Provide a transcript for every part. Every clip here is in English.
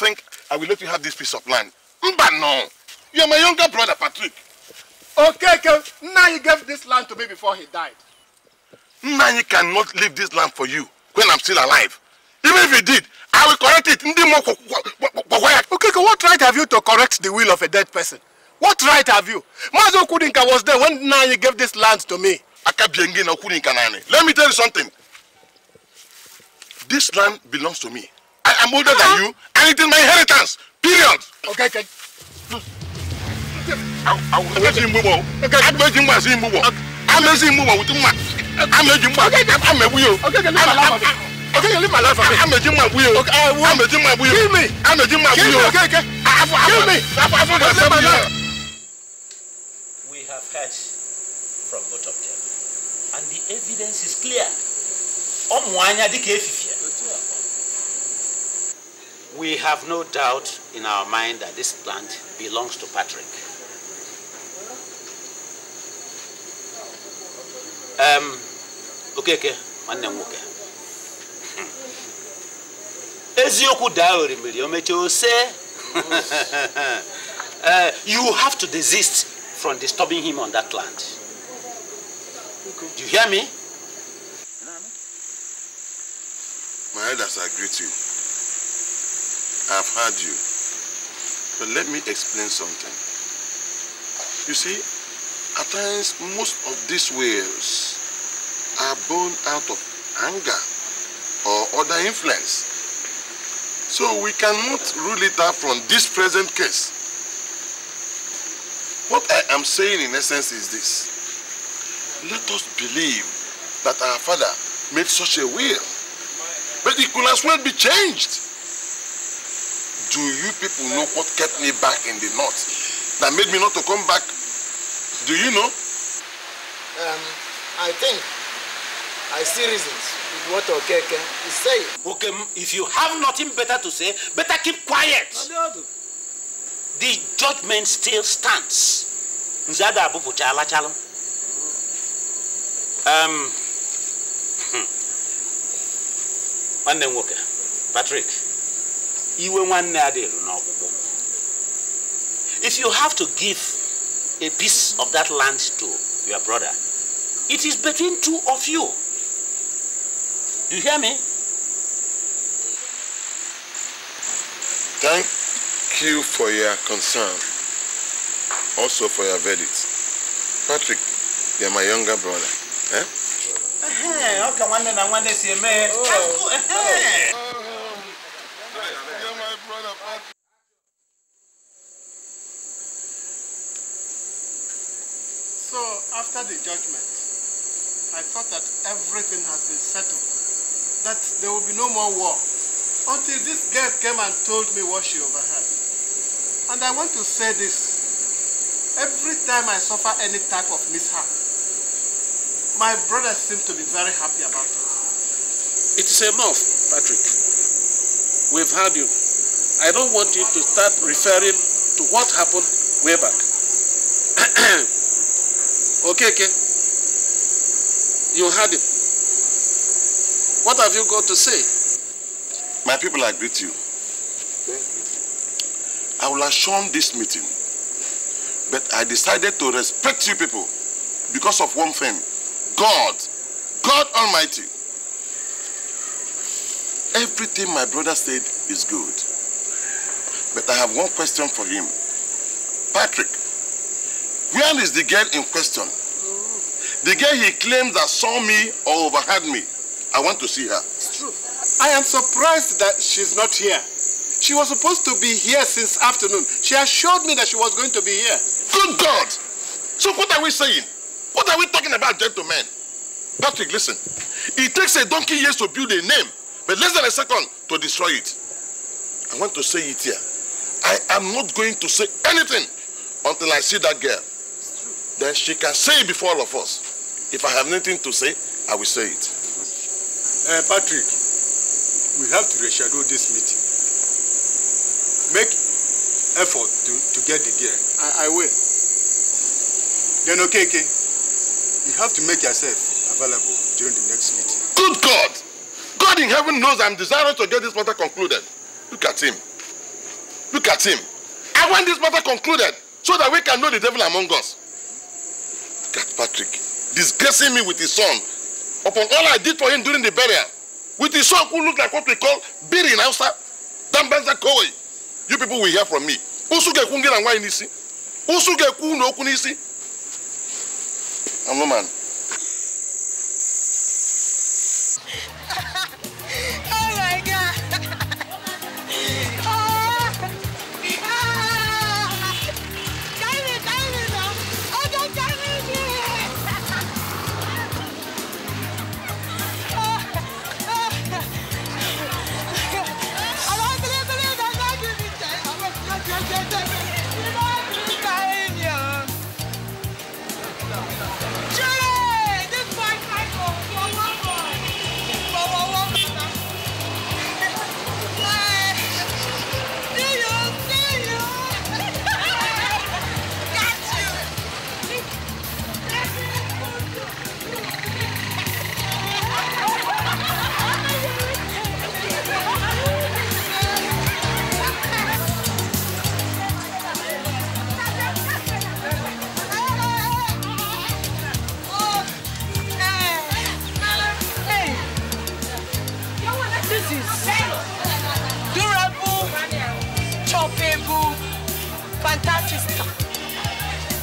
think I will let you have this piece of land? Mba, no. You are my younger brother, Patrick. Okay, okay. Now he gave this land to me before he died. Nanyi cannot leave this land for you when I'm still alive. Even if he did, I will correct it. Okay, okay, what right have you to correct the will of a dead person? What right have you? Mazo Kudinka was there when Nanyi gave this land to me. Let me tell you something. This land belongs to me. I am older than you, and it is my inheritance. Period. Okay, okay. Amezi mbubo. Amezi mbubo si mbubo. Amezi mbubo wuti mma. Amezi mbubo. Amebu yo. Okay, leave my life for me. Amezi mma bu yo. Amezi mma bu yo. Kill me. Amezi mma bu yo. Kill me. Okay, okay. Kill me. Leave my We have heard from both of them, and the evidence is clear. Ọmụ anya dịka We have no doubt in our mind that this plant belongs to Patrick. Um, okay, okay, nwanne m nwoke. Hmm. Eziokwu daa orimiri o mechie say eh, You have to desist from disturbing him on that land. Do you hear me? My elders, agree to. you. I've heard you. But let me explain something. You see, at times most of these wills are born out of anger or other influence. So we cannot rule it out from this present case. What I am saying in essence is this. Let us believe that our father made such a will. But it could as well be changed do you people know what kept me back in the north? That made me not to come back? Do you know? Um, I think I see reasons with what Okeke is saying. Okay, if you have nothing better to say, better keep quiet. The judgment still stands. Um, hmm. nwanne m nwoke Patrick if you have to give a piece of that land to your brother it is between two of you you hear me thank you for your concern also for your verdict patrick you're my younger brother eh? Uh Okay, one day, one day, see man. judgment, I thought that everything has been settled, that there will be no more war, until this girl came and told me what she overheard. And I want to say this. Every time I suffer any type of mishap, my brothers seem to be very happy about it. It is enough, Patrick. We've had you. I don't want you to start referring to what happened way back. okay, okay. You heard him. What have you got to say? My people, I greet you. you. I will have shown this meeting, but I decided to respect you people because of one thing. God, God Almighty. Everything my brother said is good. But I have one question for him. Patrick, where is the girl in question? The girl he claims that saw me or overheard me. I want to see her. It's true. I am surprised that she's not here. She was supposed to be here since afternoon. She assured me that she was going to be here. Good God! So what are we saying? What are we talking about, gentlemen? Patrick, listen. It takes a donkey years to build a name, but less than a second to destroy it. I want to say it here. I am not going to say anything until I see that girl. Then she can say it before all of us. If I have nothing to say, I will say it. Uh, Patrick, we have to reschedule this meeting. Make effort to, to get the gear. I, I will. Then, okay, okay. You have to make yourself available during the next meeting. Good God! God in heaven knows I'm desirous to get this matter concluded. Look at him. Look at him. I want this matter concluded so that we can know the devil among us. Look at Patrick. disgracing me with his son upon all I did for him during the burial, with his son who looked like what we call Biri in Hausa, Dambanza Koi. You people will hear from me. Usuge kungera nwa inisi. Usuge kuno okunisi. I'm no man.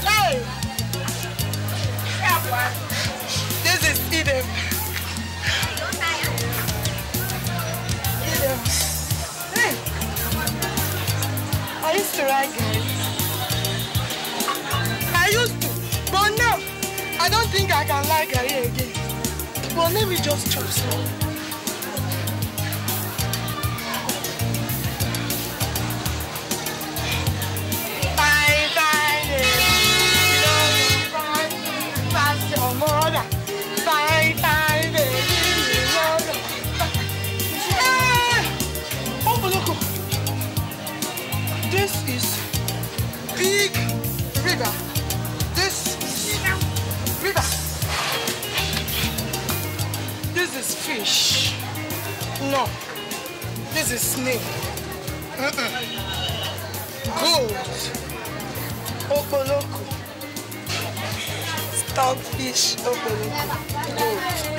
Hey! This is Eden. Eden. Hey! I used to write guys. I used to, but now I don't think I can like her again. But let me just chop some. is fish. No. This is snake. Mm -mm. Gold. Opoloko. Stockfish. Opoloko. Gold.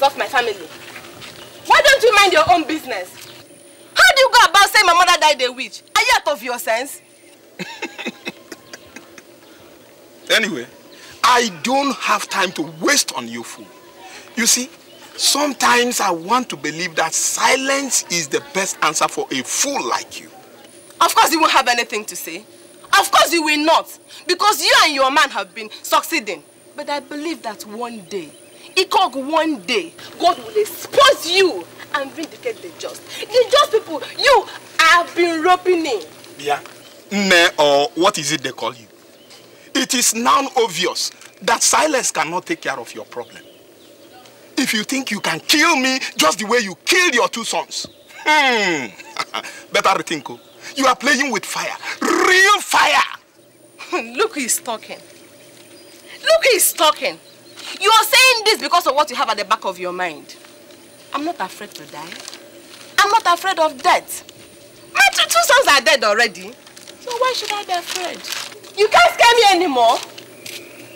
nonsense my family. Why don't you mind your own business? How do you go about saying my mother died a witch? Are you out of your sense? anyway, I don't have time to waste on you fool. You see, sometimes I want to believe that silence is the best answer for a fool like you. Of course you won't have anything to say. Of course you will not. Because you and your man have been succeeding. But I believe that one day Ikog one day, God will expose you and vindicate the just. The just people, you have been robbing. in. Yeah. Ne, or what is it they call you? It is now obvious that silence cannot take care of your problem. If you think you can kill me just the way you killed your two sons, hmm, better rethink. Oh. You are playing with fire, real fire. Look who is talking. Look who is talking. You are saying this because of what you have at the back of your mind. I'm not afraid to die. I'm not afraid of death. My two, two sons are dead already. So why should I be afraid? You can't scare me anymore.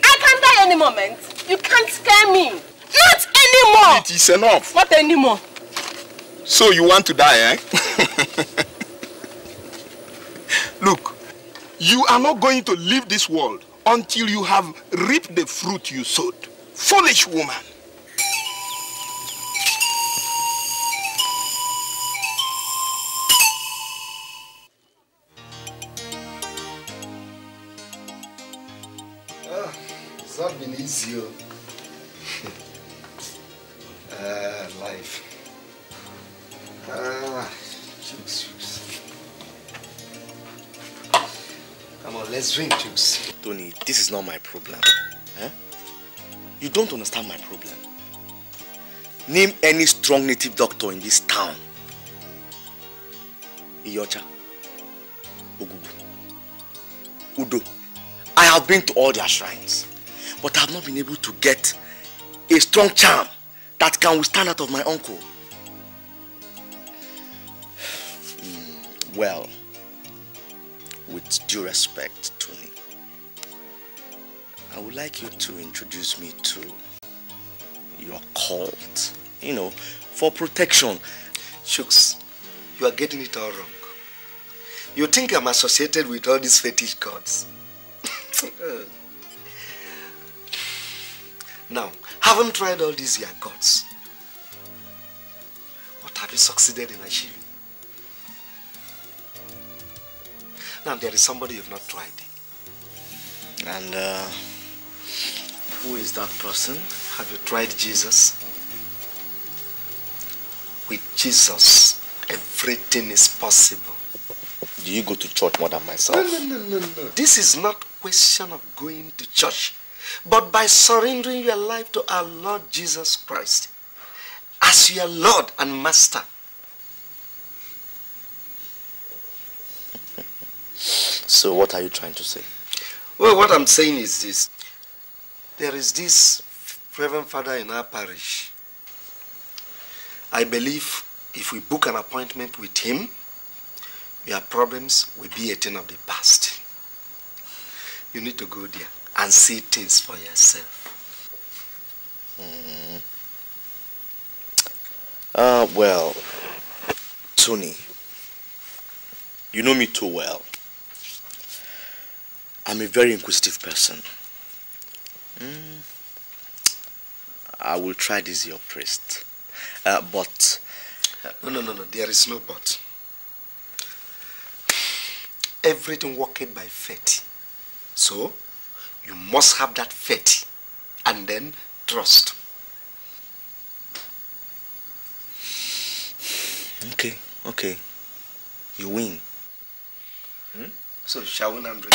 I can die any moment. You can't scare me. Not anymore. It is enough. Not anymore. So you want to die, eh? Look, you are not going to leave this world until you have reaped the fruit you sowed. Foolish woman. Ah, it's not been easy. uh, life. Ah, Jesus. Come on, let's drink juice. Tony, this is not my problem. You don't understand my problem. Name any strong native doctor in this town. Iyocha, Ogubu, Udo. I have been to all their shrines, but I have not been able to get a strong charm that can withstand out of my uncle. Hmm, well, with due respect, to me. I would like you to introduce me to your cult, you know, for protection. Shooks, you are getting it all wrong. You think I'm associated with all these fetish gods. now, haven't tried all these your gods. What have you succeeded in achieving? Now, there is somebody you've not tried. And, uh... Who is that person? Have you tried Jesus? With Jesus, everything is possible. Do you go to church more than myself? No, no, no, no, no. This is not question of going to church, but by surrendering your life to our Lord Jesus Christ as your Lord and Master. so what are you trying to say? Well, what I'm saying is this. There is this Reverend Father in our parish. I believe if we book an appointment with him, your problems will be a thing of the past. You need to go there and see things for yourself. Mm Uh, well, Tony, you know me too well. I'm a very inquisitive person. Mm, I will try this, your priest. Uh, but. No, no, no, no. There is no but. Everything working by faith. So, you must have that faith and then trust. Okay, okay. You win. Hmm? So, shall we Andre?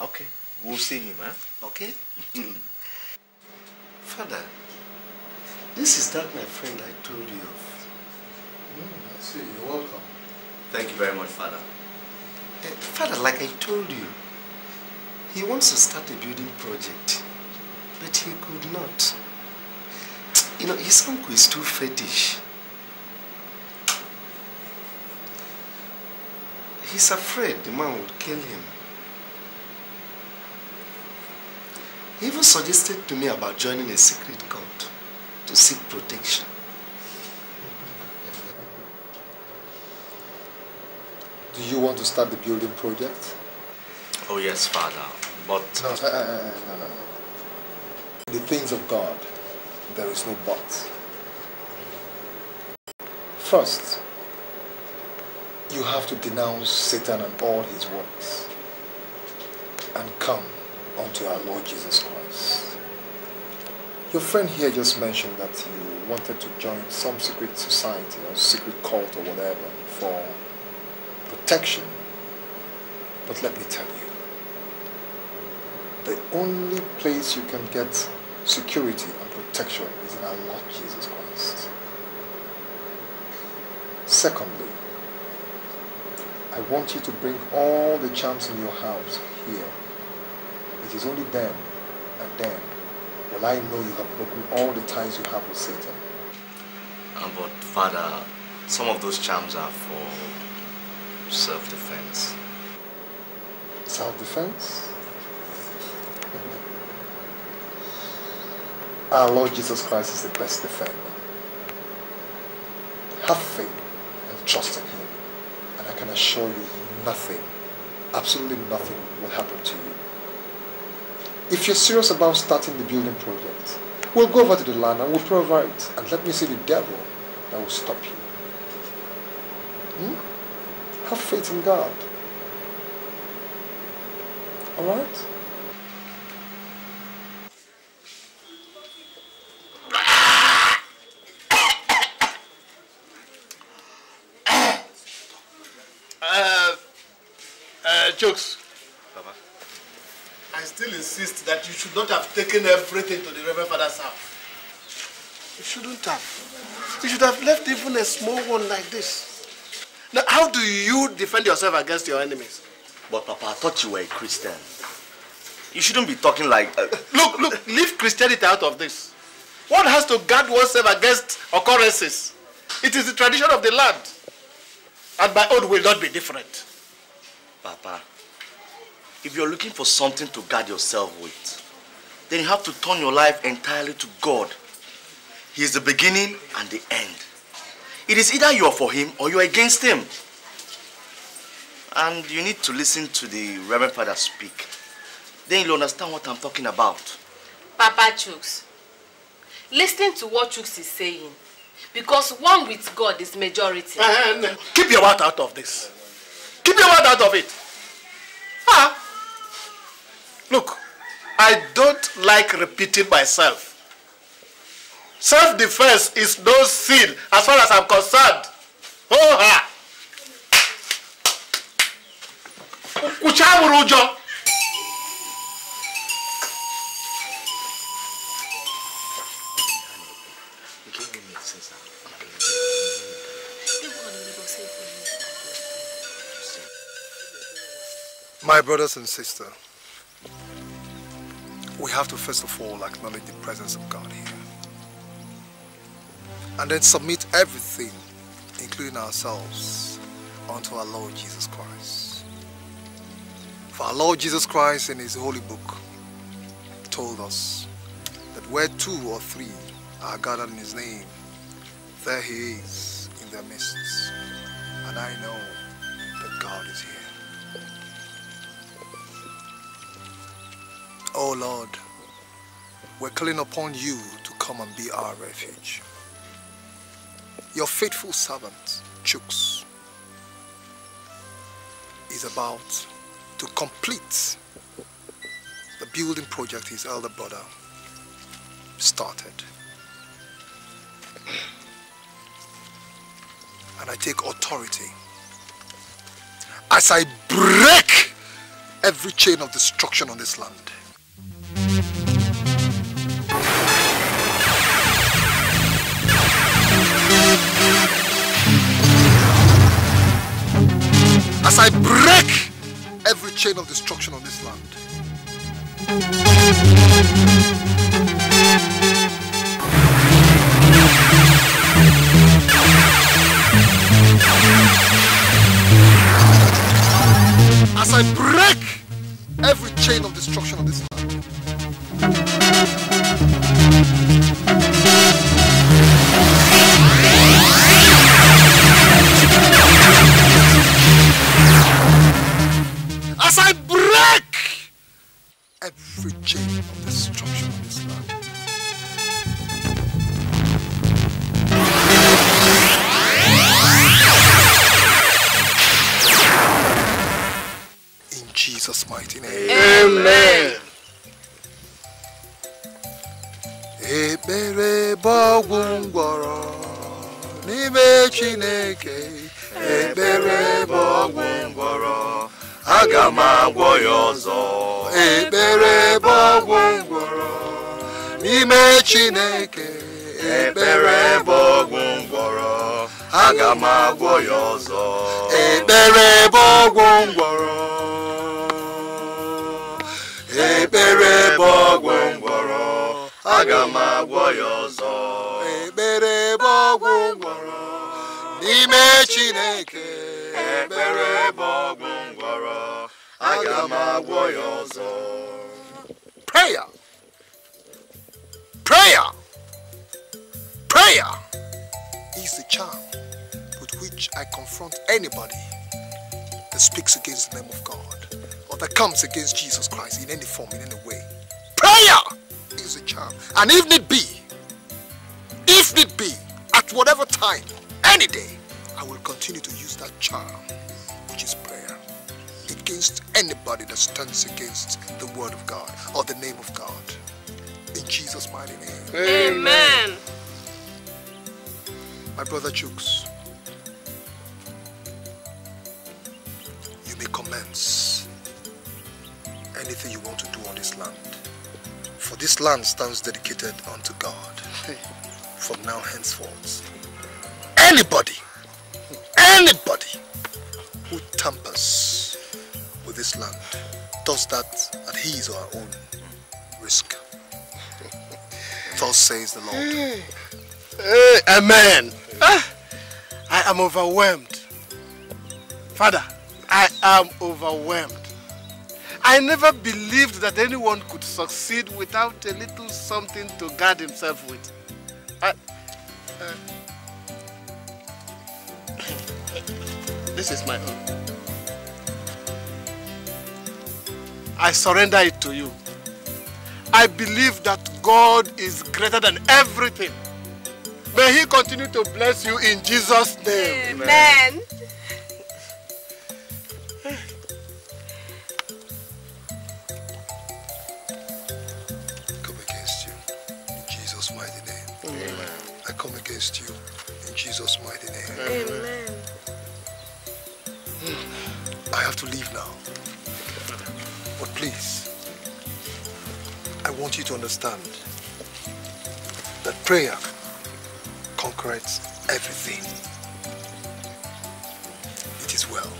Okay. We'll see him, huh? Okay? Hmm. Father, this is that my friend I told you of. Mm, I see. You're welcome. Thank you very much, Father. Uh, Father, like I told you, he wants to start a building project, but he could not. You know, his uncle is too fetish. He's afraid the man would kill him. He even suggested to me about joining a secret cult to seek protection. Do you want to start the building project? Oh yes, Father, but... No, no, no, no, no. the things of God, there is no but. First, you have to denounce Satan and all his works and come unto our Lord Jesus Christ. Your friend here just mentioned that you wanted to join some secret society or secret cult or whatever for protection. But let me tell you, the only place you can get security and protection is in our Lord Jesus Christ. Secondly, I want you to bring all the charms in your house here it is only then and then will I know you have broken all the ties you have with Satan. Um, but Father, some of those charms are for self-defense. Self-defense? Our Lord Jesus Christ is the best defender. Have faith and trust in Him. And I can assure you nothing, absolutely nothing will happen to you. If you're serious about starting the building project, we'll go over to the land and we'll provide. And let me see the devil that will stop you. Hmm? Have faith in God. Alright? Uh, uh, jokes. still insist that you should not have taken everything to the Reverend Father's house. You shouldn't have. You should have left even a small one like this. Now, how do you defend yourself against your enemies? But Papa, I thought you were a Christian. You shouldn't be talking like... Uh... look, look, leave Christianity out of this. One has to guard oneself against occurrences. It is the tradition of the land. And my own will not be different. Papa, If you're looking for something to guard yourself with, then you have to turn your life entirely to God. He is the beginning and the end. It is either you are for him or you are against him. And you need to listen to the Reverend Father speak. Then you'll understand what I'm talking about. Papa Chooks, listening to what Chooks is saying, because one with God is majority. And keep your mouth out of this. Keep your mouth out of it. Ah, Look, I don't like repeating myself. Self-defense is no sin as far as I'm concerned. Oh, ha! My brothers and sisters, we have to first of all acknowledge the presence of God here. And then submit everything, including ourselves, unto our Lord Jesus Christ. For our Lord Jesus Christ in his holy book told us that where two or three are gathered in his name, there he is in their midst. And I know that God is here. O oh Lord, we're calling upon you to come and be our refuge. Your faithful servant, Chooks, is about to complete the building project his elder brother started. And I take authority as I break every chain of destruction on this land. as I break every chain of destruction on this land. As I break every chain of destruction on this land. Chineke ekpere bụ ọgwụ aga m agwọ ya ọzọ prayer prayer prayer is the charm with which I confront anybody that speaks against the name of God or that comes against Jesus Christ in any form, in any way. Prayer is a charm. And if need be, if need be, at whatever time, any day, I will continue to use that charm, which is prayer, against anybody that stands against the word of God or the name of God. In Jesus' mighty name. Amen. My brother Chooks, you may commence anything you want to do on this land. For this land stands dedicated unto God from now henceforth. Anybody does that at his or her own risk. Thus says the Lord. Hey. amen. Ah, I am overwhelmed. Father, I am overwhelmed. I never believed that anyone could succeed without a little something to guard himself with. I, uh, this is my own. I surrender it to you. I believe that God is greater than everything. May he continue to bless you in Jesus' name. Amen. Amen. understand that prayer conquers everything. It is well.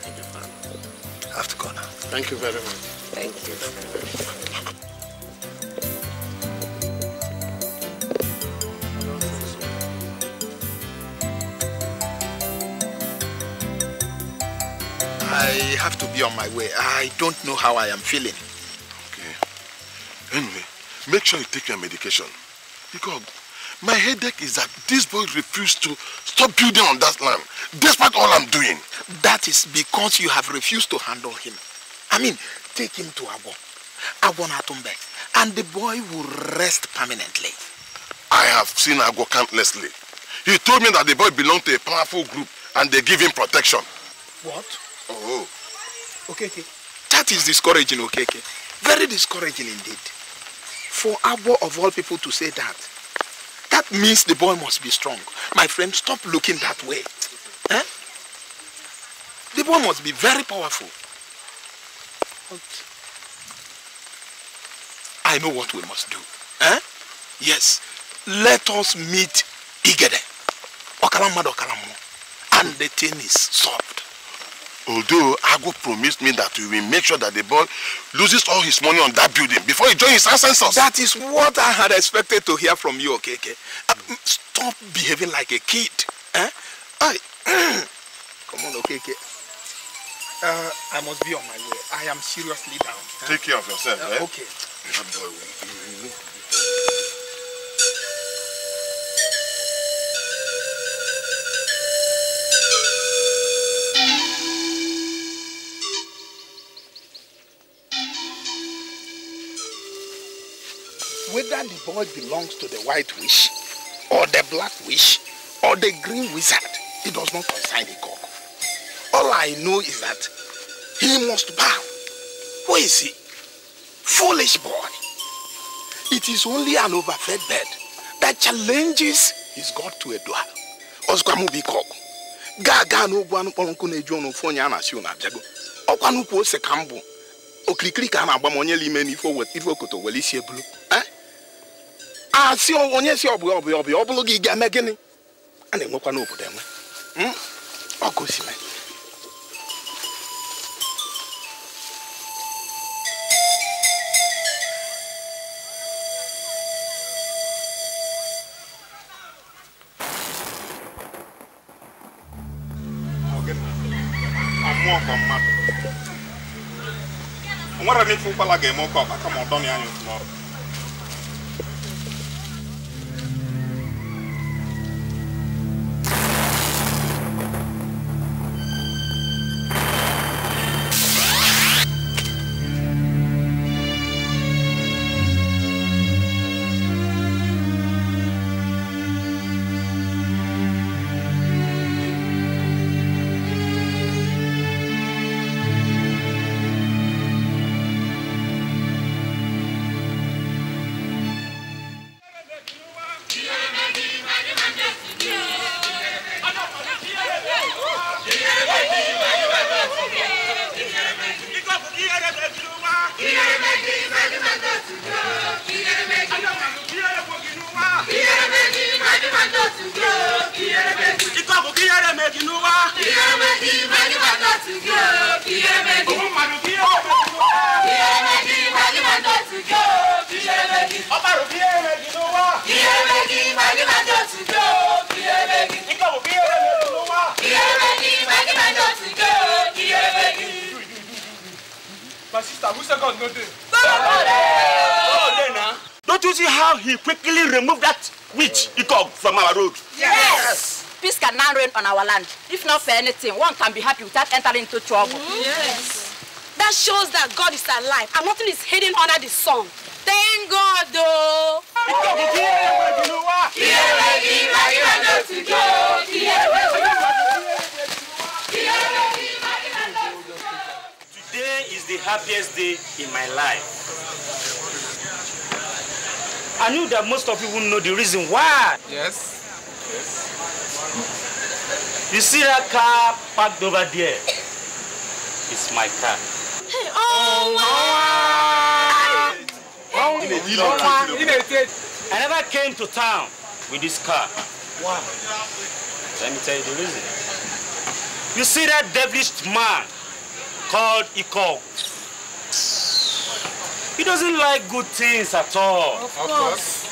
Thank you, Father. have to go now. Thank you very much. Thank you. I have to be on my way. I don't know how I am feeling. Make sure you take your medication. Because my headache is that this boy refused to stop building on that land, despite all I'm doing. That is because you have refused to handle him. I mean, take him to Agwon. Agwon Atumbe. And the boy will rest permanently. I have seen Agwon countlessly. He told me that the boy belonged to a powerful group and they give him protection. What? Oh. Okay, okay. That is discouraging, okay, Okay. Very discouraging indeed. For Abo of all people to say that, that means the boy must be strong. My friend, stop looking that way. Eh? The boy must be very powerful. But I know what we must do. Eh? Yes, let us meet Igede. Okalammadu Okalamu. And the thing is solved although Ago promised me that we will make sure that the boy loses all his money on that building before he joins his ancestors. That is what I had expected to hear from you, Okeke. Okay, okay. Uh, stop behaving like a kid. Eh? I, come on, Okeke. Okay, uh, I must be on my way. I am seriously down. Eh? Take care of yourself. Uh, eh? Okay. whether the boy belongs to the white witch or the black witch or the green wizard, he does not concern the cock. All I know is that he must bow. Who is he? Foolish boy. It is only an overfed bird that challenges his God to a duel. Osgwamubi cock. Gaga no one ponku nejo no fonya na si una jago. Okwanupu ose kambo. Okirikiri ka na agba monye lime ni ifo wet ifo koto welisi asị ah, onye si ọbụ ọbụ ọbụ ọ bụrụ gị ga eme gịnị a na-enwekwa n'obodo enwe hmm? ọkụ osime nwere m ife ụkwala ga-eme oke ọkpa kama ọ dọnị anya otu n'ọrụ Oh, ah. Don't you see how he quickly removed that which he called from our road. yes. yes. peace can now reign on our land if not for anything one can be happy without entering into trouble. Mm-hmm. yes. that shows that God is alive and nothing is hidden under the sun. thank God o. today is the happiest day in my life. I knew that most of you wouldn't know the reason why. Yes. Yes. You see that car parked over there? It's my car. Hey, oh, wow. Wow. Wow. I never came to town with this car. Why? Let me tell you the reason. You see that devilish man called Ikog? He doesn't like good things at all. Of course.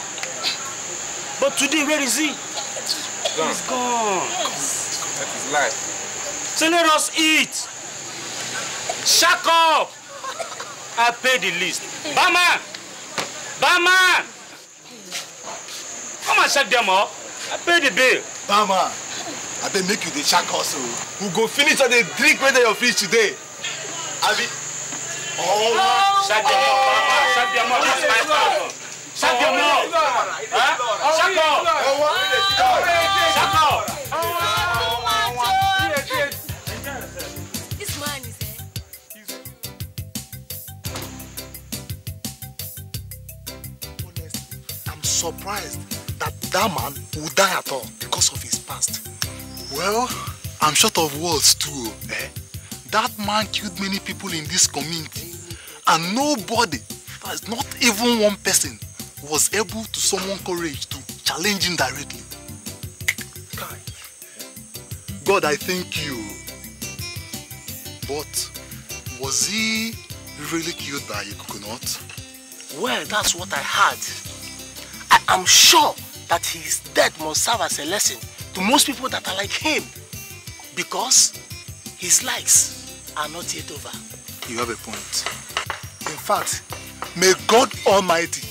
But today, where is he? Gone. He's gone. Yes. That is life. So let us eat. Shack up. I pay the list. Bama! Bama! Come and shut them up. I pay the bill. Bama! I beg make you the shack also. We go finish all the drink whether dey your fridge today. Abi. Oh, oh, shut them up. I'm surprised that that man would die at all because of his past. Well, I'm short of words too, eh? That man killed many people in this community and nobody Pass, not even one person was able to summon courage to challenge him directly. God, I thank you. But was he really killed by a coconut? Well, that's what I heard. I am sure that his death must serve as a lesson to most people that are like him because his likes are not yet over. You have a point. In fact, May God Almighty,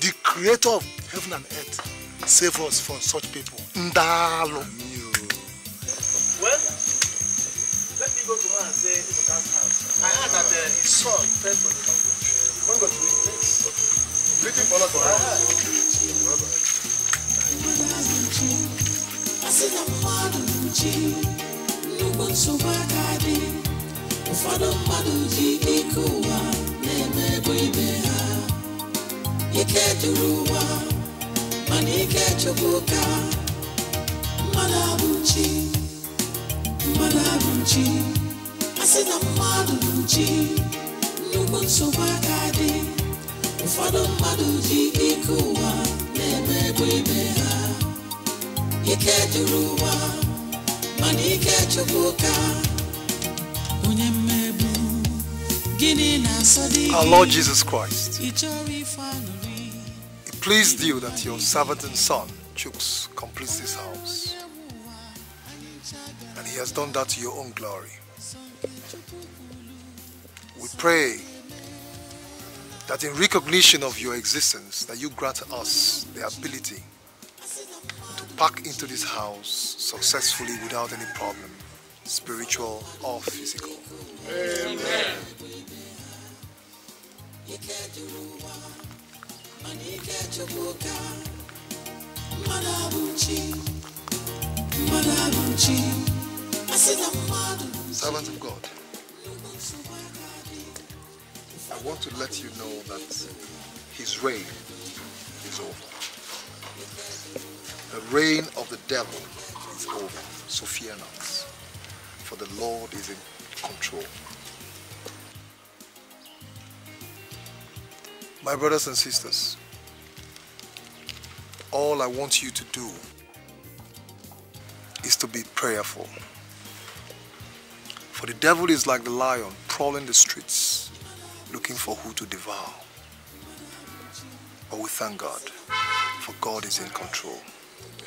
the creator of heaven and earth, save us from such people. Ndalo. Well, let me go to man and say Ezoka's house. I heard that uh, his son fell from the mountain. When God will place. Waiting for us to have. Bye bye. na-ebu ibe ha ike juru ụwa mana ike chukwu ka mmadụ abụ nchi mmadụ abụ nchi a sị na mmadụ bụ nchi nnukwu nsogbu aka dị ụfọdụ mmadụ ji ike ụwa na-emegbu eme ibe ha ike juru ụwa mana ike chukwu ka onye Our Lord Jesus Christ, it pleased you that your servant and son, Chooks, completes this house. And he has done that to your own glory. We pray that in recognition of your existence, that you grant us the ability to pack into this house successfully without any problem, spiritual or physical. Amen servant of God I want to let you know that his reign is over. The reign of the devil is over. not, For the Lord is in control. My brothers and sisters, all I want you to do is to be prayerful. For the devil is like the lion prowling the streets looking for who to devour. But we thank God, for God is in control.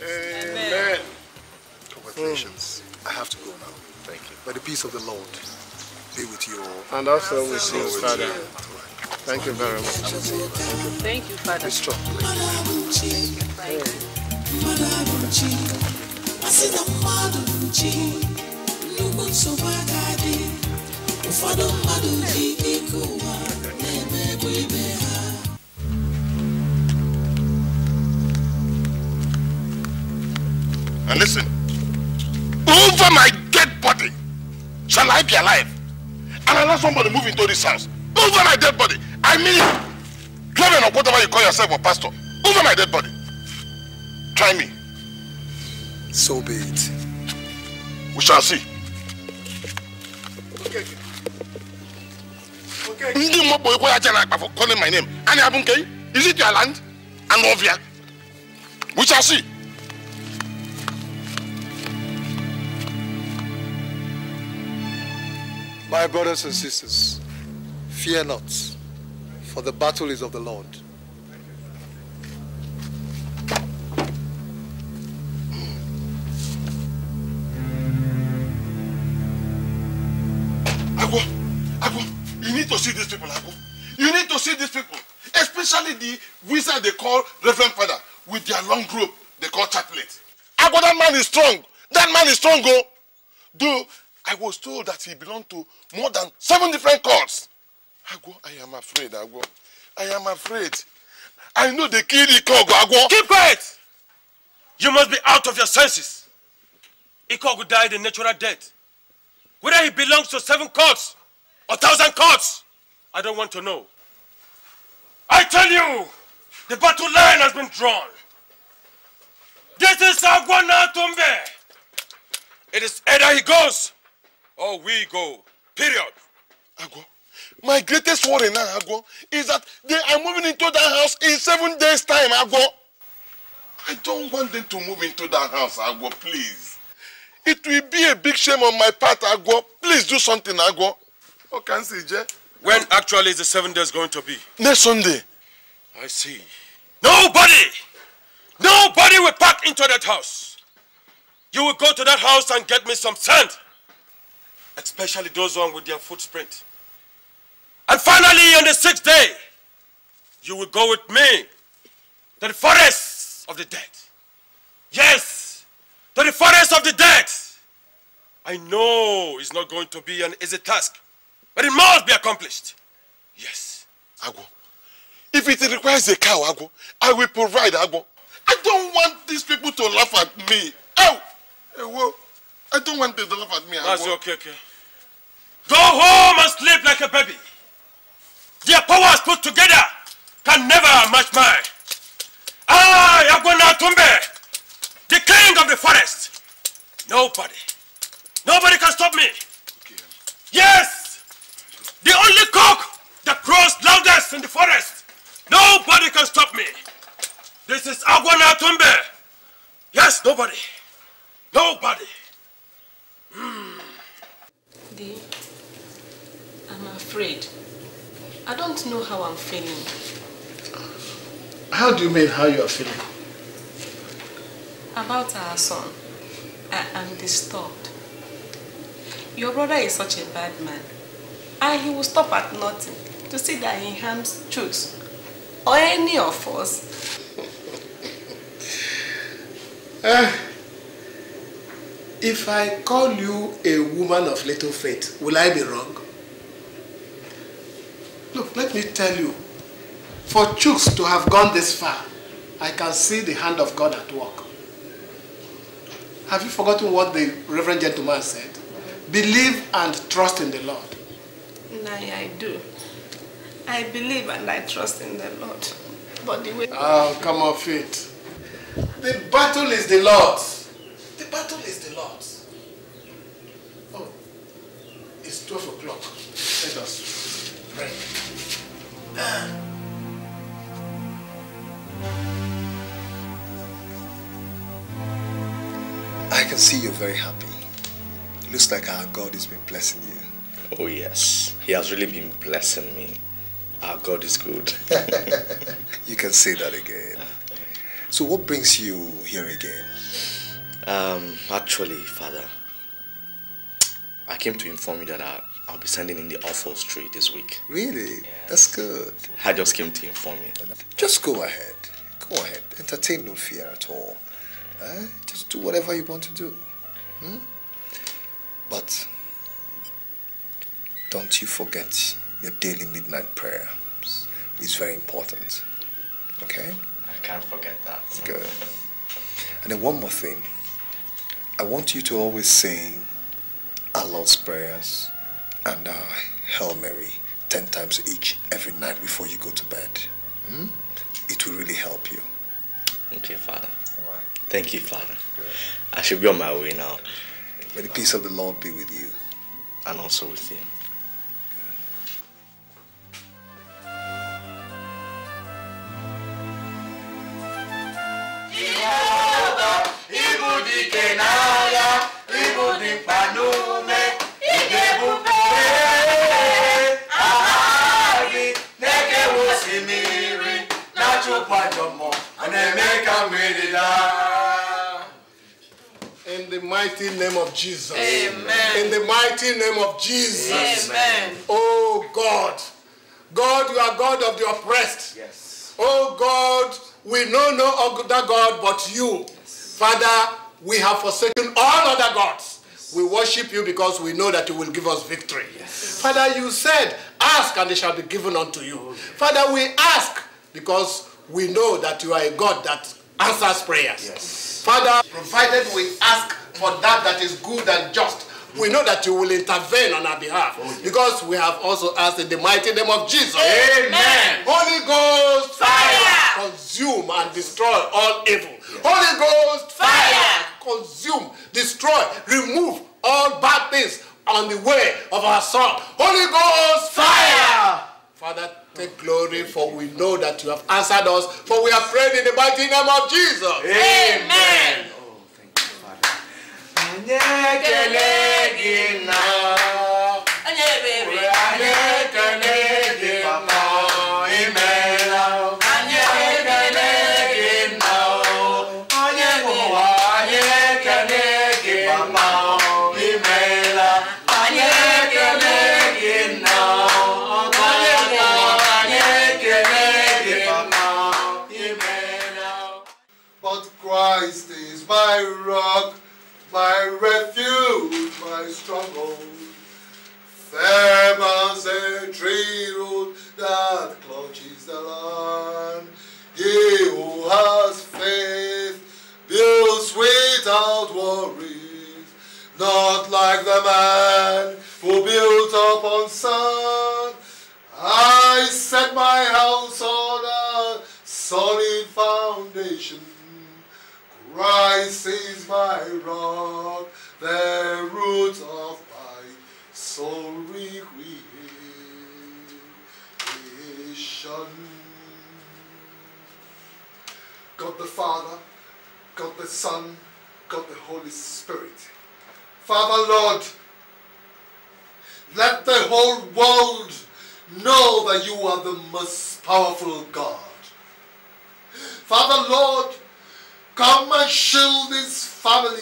Amen. Congratulations. Mm. I have to go now. Thank you. By the peace of the Lord be with you all. And also with you, Father. Thank you very much. Thank you, Father. And listen, over my dead body shall I be alive. And I let somebody move into this house. Over my dead body I mean it. Clement or whatever you call yourself or pastor, over my dead body. Try me. So be it. We shall see. Okay. Okay. For calling my name. Is it your land? Anovia. We shall see. My brothers and sisters, fear not. for the battle is of the Lord. Agwo, Agwo, you need to see these people, Agwo. You need to see these people, especially the wizard they call Reverend Father with their long rope they call chaplet. Agwo, that man is strong. That man is strong, go. Oh. Though I was told that he belonged to more than seven different cults. Agwo, I am afraid, Agwo. I am afraid. I know they killed I Agwo. Keep quiet! You must be out of your senses. Ikogu died a natural death. Whether he belongs to seven courts or thousand courts, I don't want to know. I tell you, the battle line has been drawn. This is Agwana Tombe. It is either he goes or we go. Period. Agwo, my greatest worry now, Agwo, is that they are moving into that house in seven days' time, Agwo. I don't want them to move into that house, Agwo, please. It will be a big shame on my part, Agwo. Please do something, Agwo. Okay, CJ. When actually is the seven days going to be? Next Sunday. I see. Nobody! Nobody will pack into that house. You will go to that house and get me some sand. Especially those ones with their footprint. And finally, on the sixth day, you will go with me to the forest of the dead. Yes, to the forest of the dead. I know it's not going to be an easy task, but it must be accomplished. Yes. Agwo, if it requires a cow, Agwo, I will provide Agwo. I don't want these people to laugh at me. Oh, eh, Ewo, I don't want them to laugh at me, Agwo. That's okay, okay. Go home and sleep like a baby put together can never match mine. I, Agwana Tumbe, the king of the forest. Nobody, nobody can stop me. Yes, the only cock that crows loudest in the forest. Nobody can stop me. This is Agwana Tumbe. Yes, nobody. Nobody. Mm. I'm afraid I don't know how I'm feeling. How do you mean how you are feeling? About our son. I am disturbed. Your brother is such a bad man. And he will stop at nothing to see that he harms truth. Or any of us. uh, if I call you a woman of little faith, will I be wrong? let me tell you, for Chooks to have gone this far, I can see the hand of God at work. Have you forgotten what the reverend gentleman said? Believe and trust in the Lord. Nay, I do. I believe and I trust in the Lord. But the way... Oh, come off it. The battle is the Lord's. The battle is the Lord's. Oh, it's 12 o'clock. Let us... I can see you're very happy. It looks like our God has been blessing you. Oh, yes. He has really been blessing me. Our God is good. you can say that again. So, what brings you here again? Um, actually, Father, came to inform you that I, I'll be sending in the offer straight this week. Really? Yeah. That's good. I just came to inform you. Just go ahead. Go ahead. Entertain no fear at all. Eh? Just do whatever you want to do. Hmm? But don't you forget your daily midnight prayer. It's very important. Okay? I can't forget that. Good. And then one more thing. I want you to always sing our Lord's Prayers, and our Hail Mary 10 times each every night before you go to bed. Hmm? It will really help you. Okay, Father. Thank you, Father. I should be on my way now. May the peace of the Lord be with you. And also with you. In the mighty name of Jesus. Amen. In the mighty name of Jesus. Amen. Oh God. God, you are God of the oppressed. Yes. Oh God, we know no other God but you. Yes. Father, we have forsaken all other gods. We worship you because we know that you will give us victory. Yes. Father, you said, ask and it shall be given unto you. Okay. Father, we ask because we know that you are a God that answers prayers. Yes. Father, provided we ask for that that is good and just, we know that you will intervene on our behalf oh, yes. because we have also asked in the mighty name of Jesus. Amen. Holy Ghost fire, fire. consume and destroy all evil. Yes. Holy Ghost fire. fire consume, destroy, remove all bad things on the way of our soul. Holy Ghost fire. Father, take glory, for we know that you have answered us, for we are prayed in the mighty name of Jesus. Amen. Amen. anyị ekele gị nna anyị ebere anyị stronghold. Firm as a tree root that clutches the land. He who has faith builds without worries, not like the man who built upon sand. I set my house on a solid foundation. Christ is my rock the root of my soul recreation. God the Father, God the Son, God the Holy Spirit. Father, Lord, let the whole world know that you are the most powerful God. Father, Lord, come and shield this family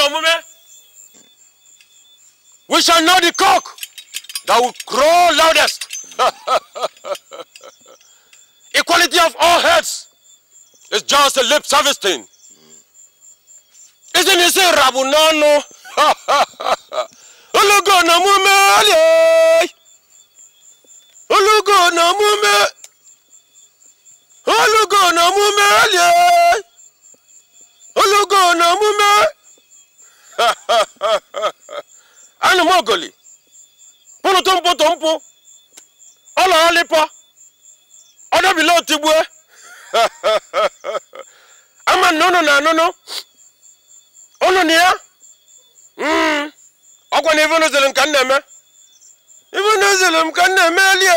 no mume. We shall know the cock that will crow loudest. Equality of all heads is just a lip service thing. Isn't it Say, Rabunano? Ulugo na mume Ulugo eh. na mume Ulugo na mume Ulugo eh. na mume anụmogoli pụrụtụ mpụ tụ mpụ ọla ọlịpọ ọdọbila otigbue ama na ụnụ na anụnụ ụnụ na ya hmm. ọkwa na ivenuzelu m ka m na-eme ivenuzelu m ka m na-eme elie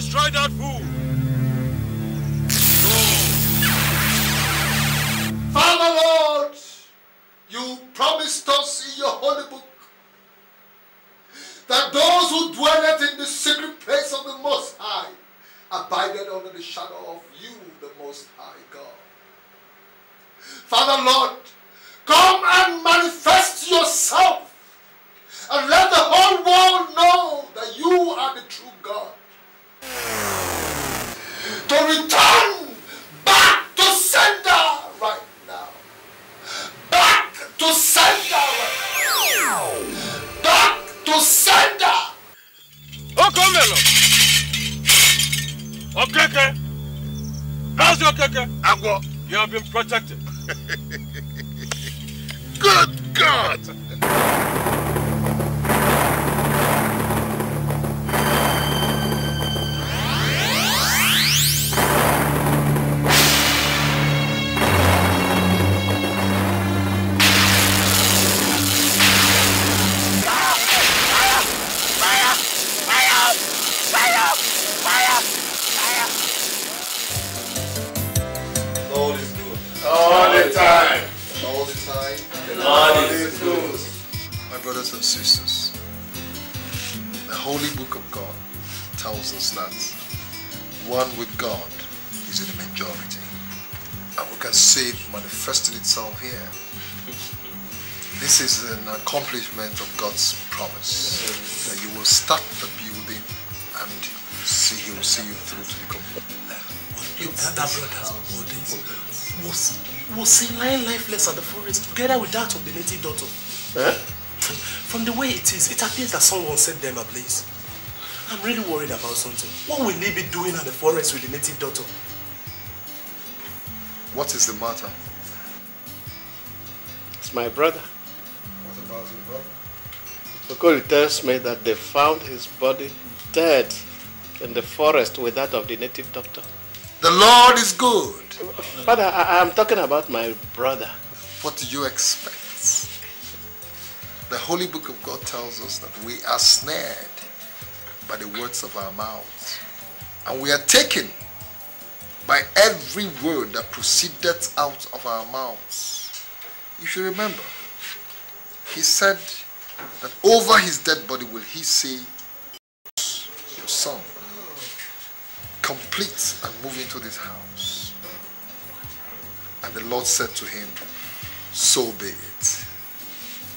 destroy that fool! brothers and sisters, the Holy Book of God tells us that one with God is in the majority. And we can see it manifesting itself here. This is an accomplishment of God's promise that you will start the building and see, He will see you through to the completion. That brother's was was lying lifeless at the forest together with that of the native daughter. From the way it is, it appears that someone set them ablaze. I'm really worried about something. What will he be doing at the forest with the native daughter? What is the matter? It's my brother. What about your brother? Okoli tells me that they found his body dead in the forest with that of the native doctor. The Lord is good. Father, I, am talking about my brother. What do you expect? The Holy Book of God tells us that we are snared by the words of our mouths, and we are taken by every word that proceeded out of our mouths. You should remember, he said that over his dead body will he say, Your son, complete and move into this house. And the Lord said to him, So be it.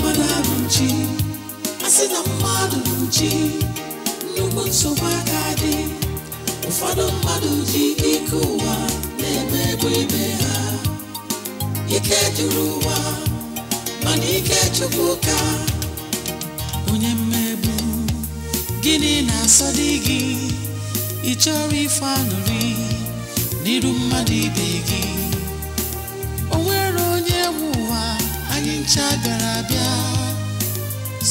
mmadụ asị na mmadụ nchi nnukwu nsogbu aka dị ụfọdụ mmadụ ji ike ụwa na-emegbu ibe ha ike juru ụwa mana ike chukwu onye gịnị na-asọ dị gị ị chọrọ ife aṅụrị mmadụ ibe gị ncha songke abịa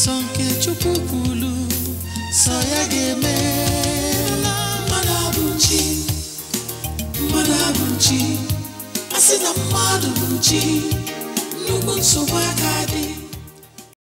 sọ nke chukwu kwulu sọ ya ga-eme mmadụ abụ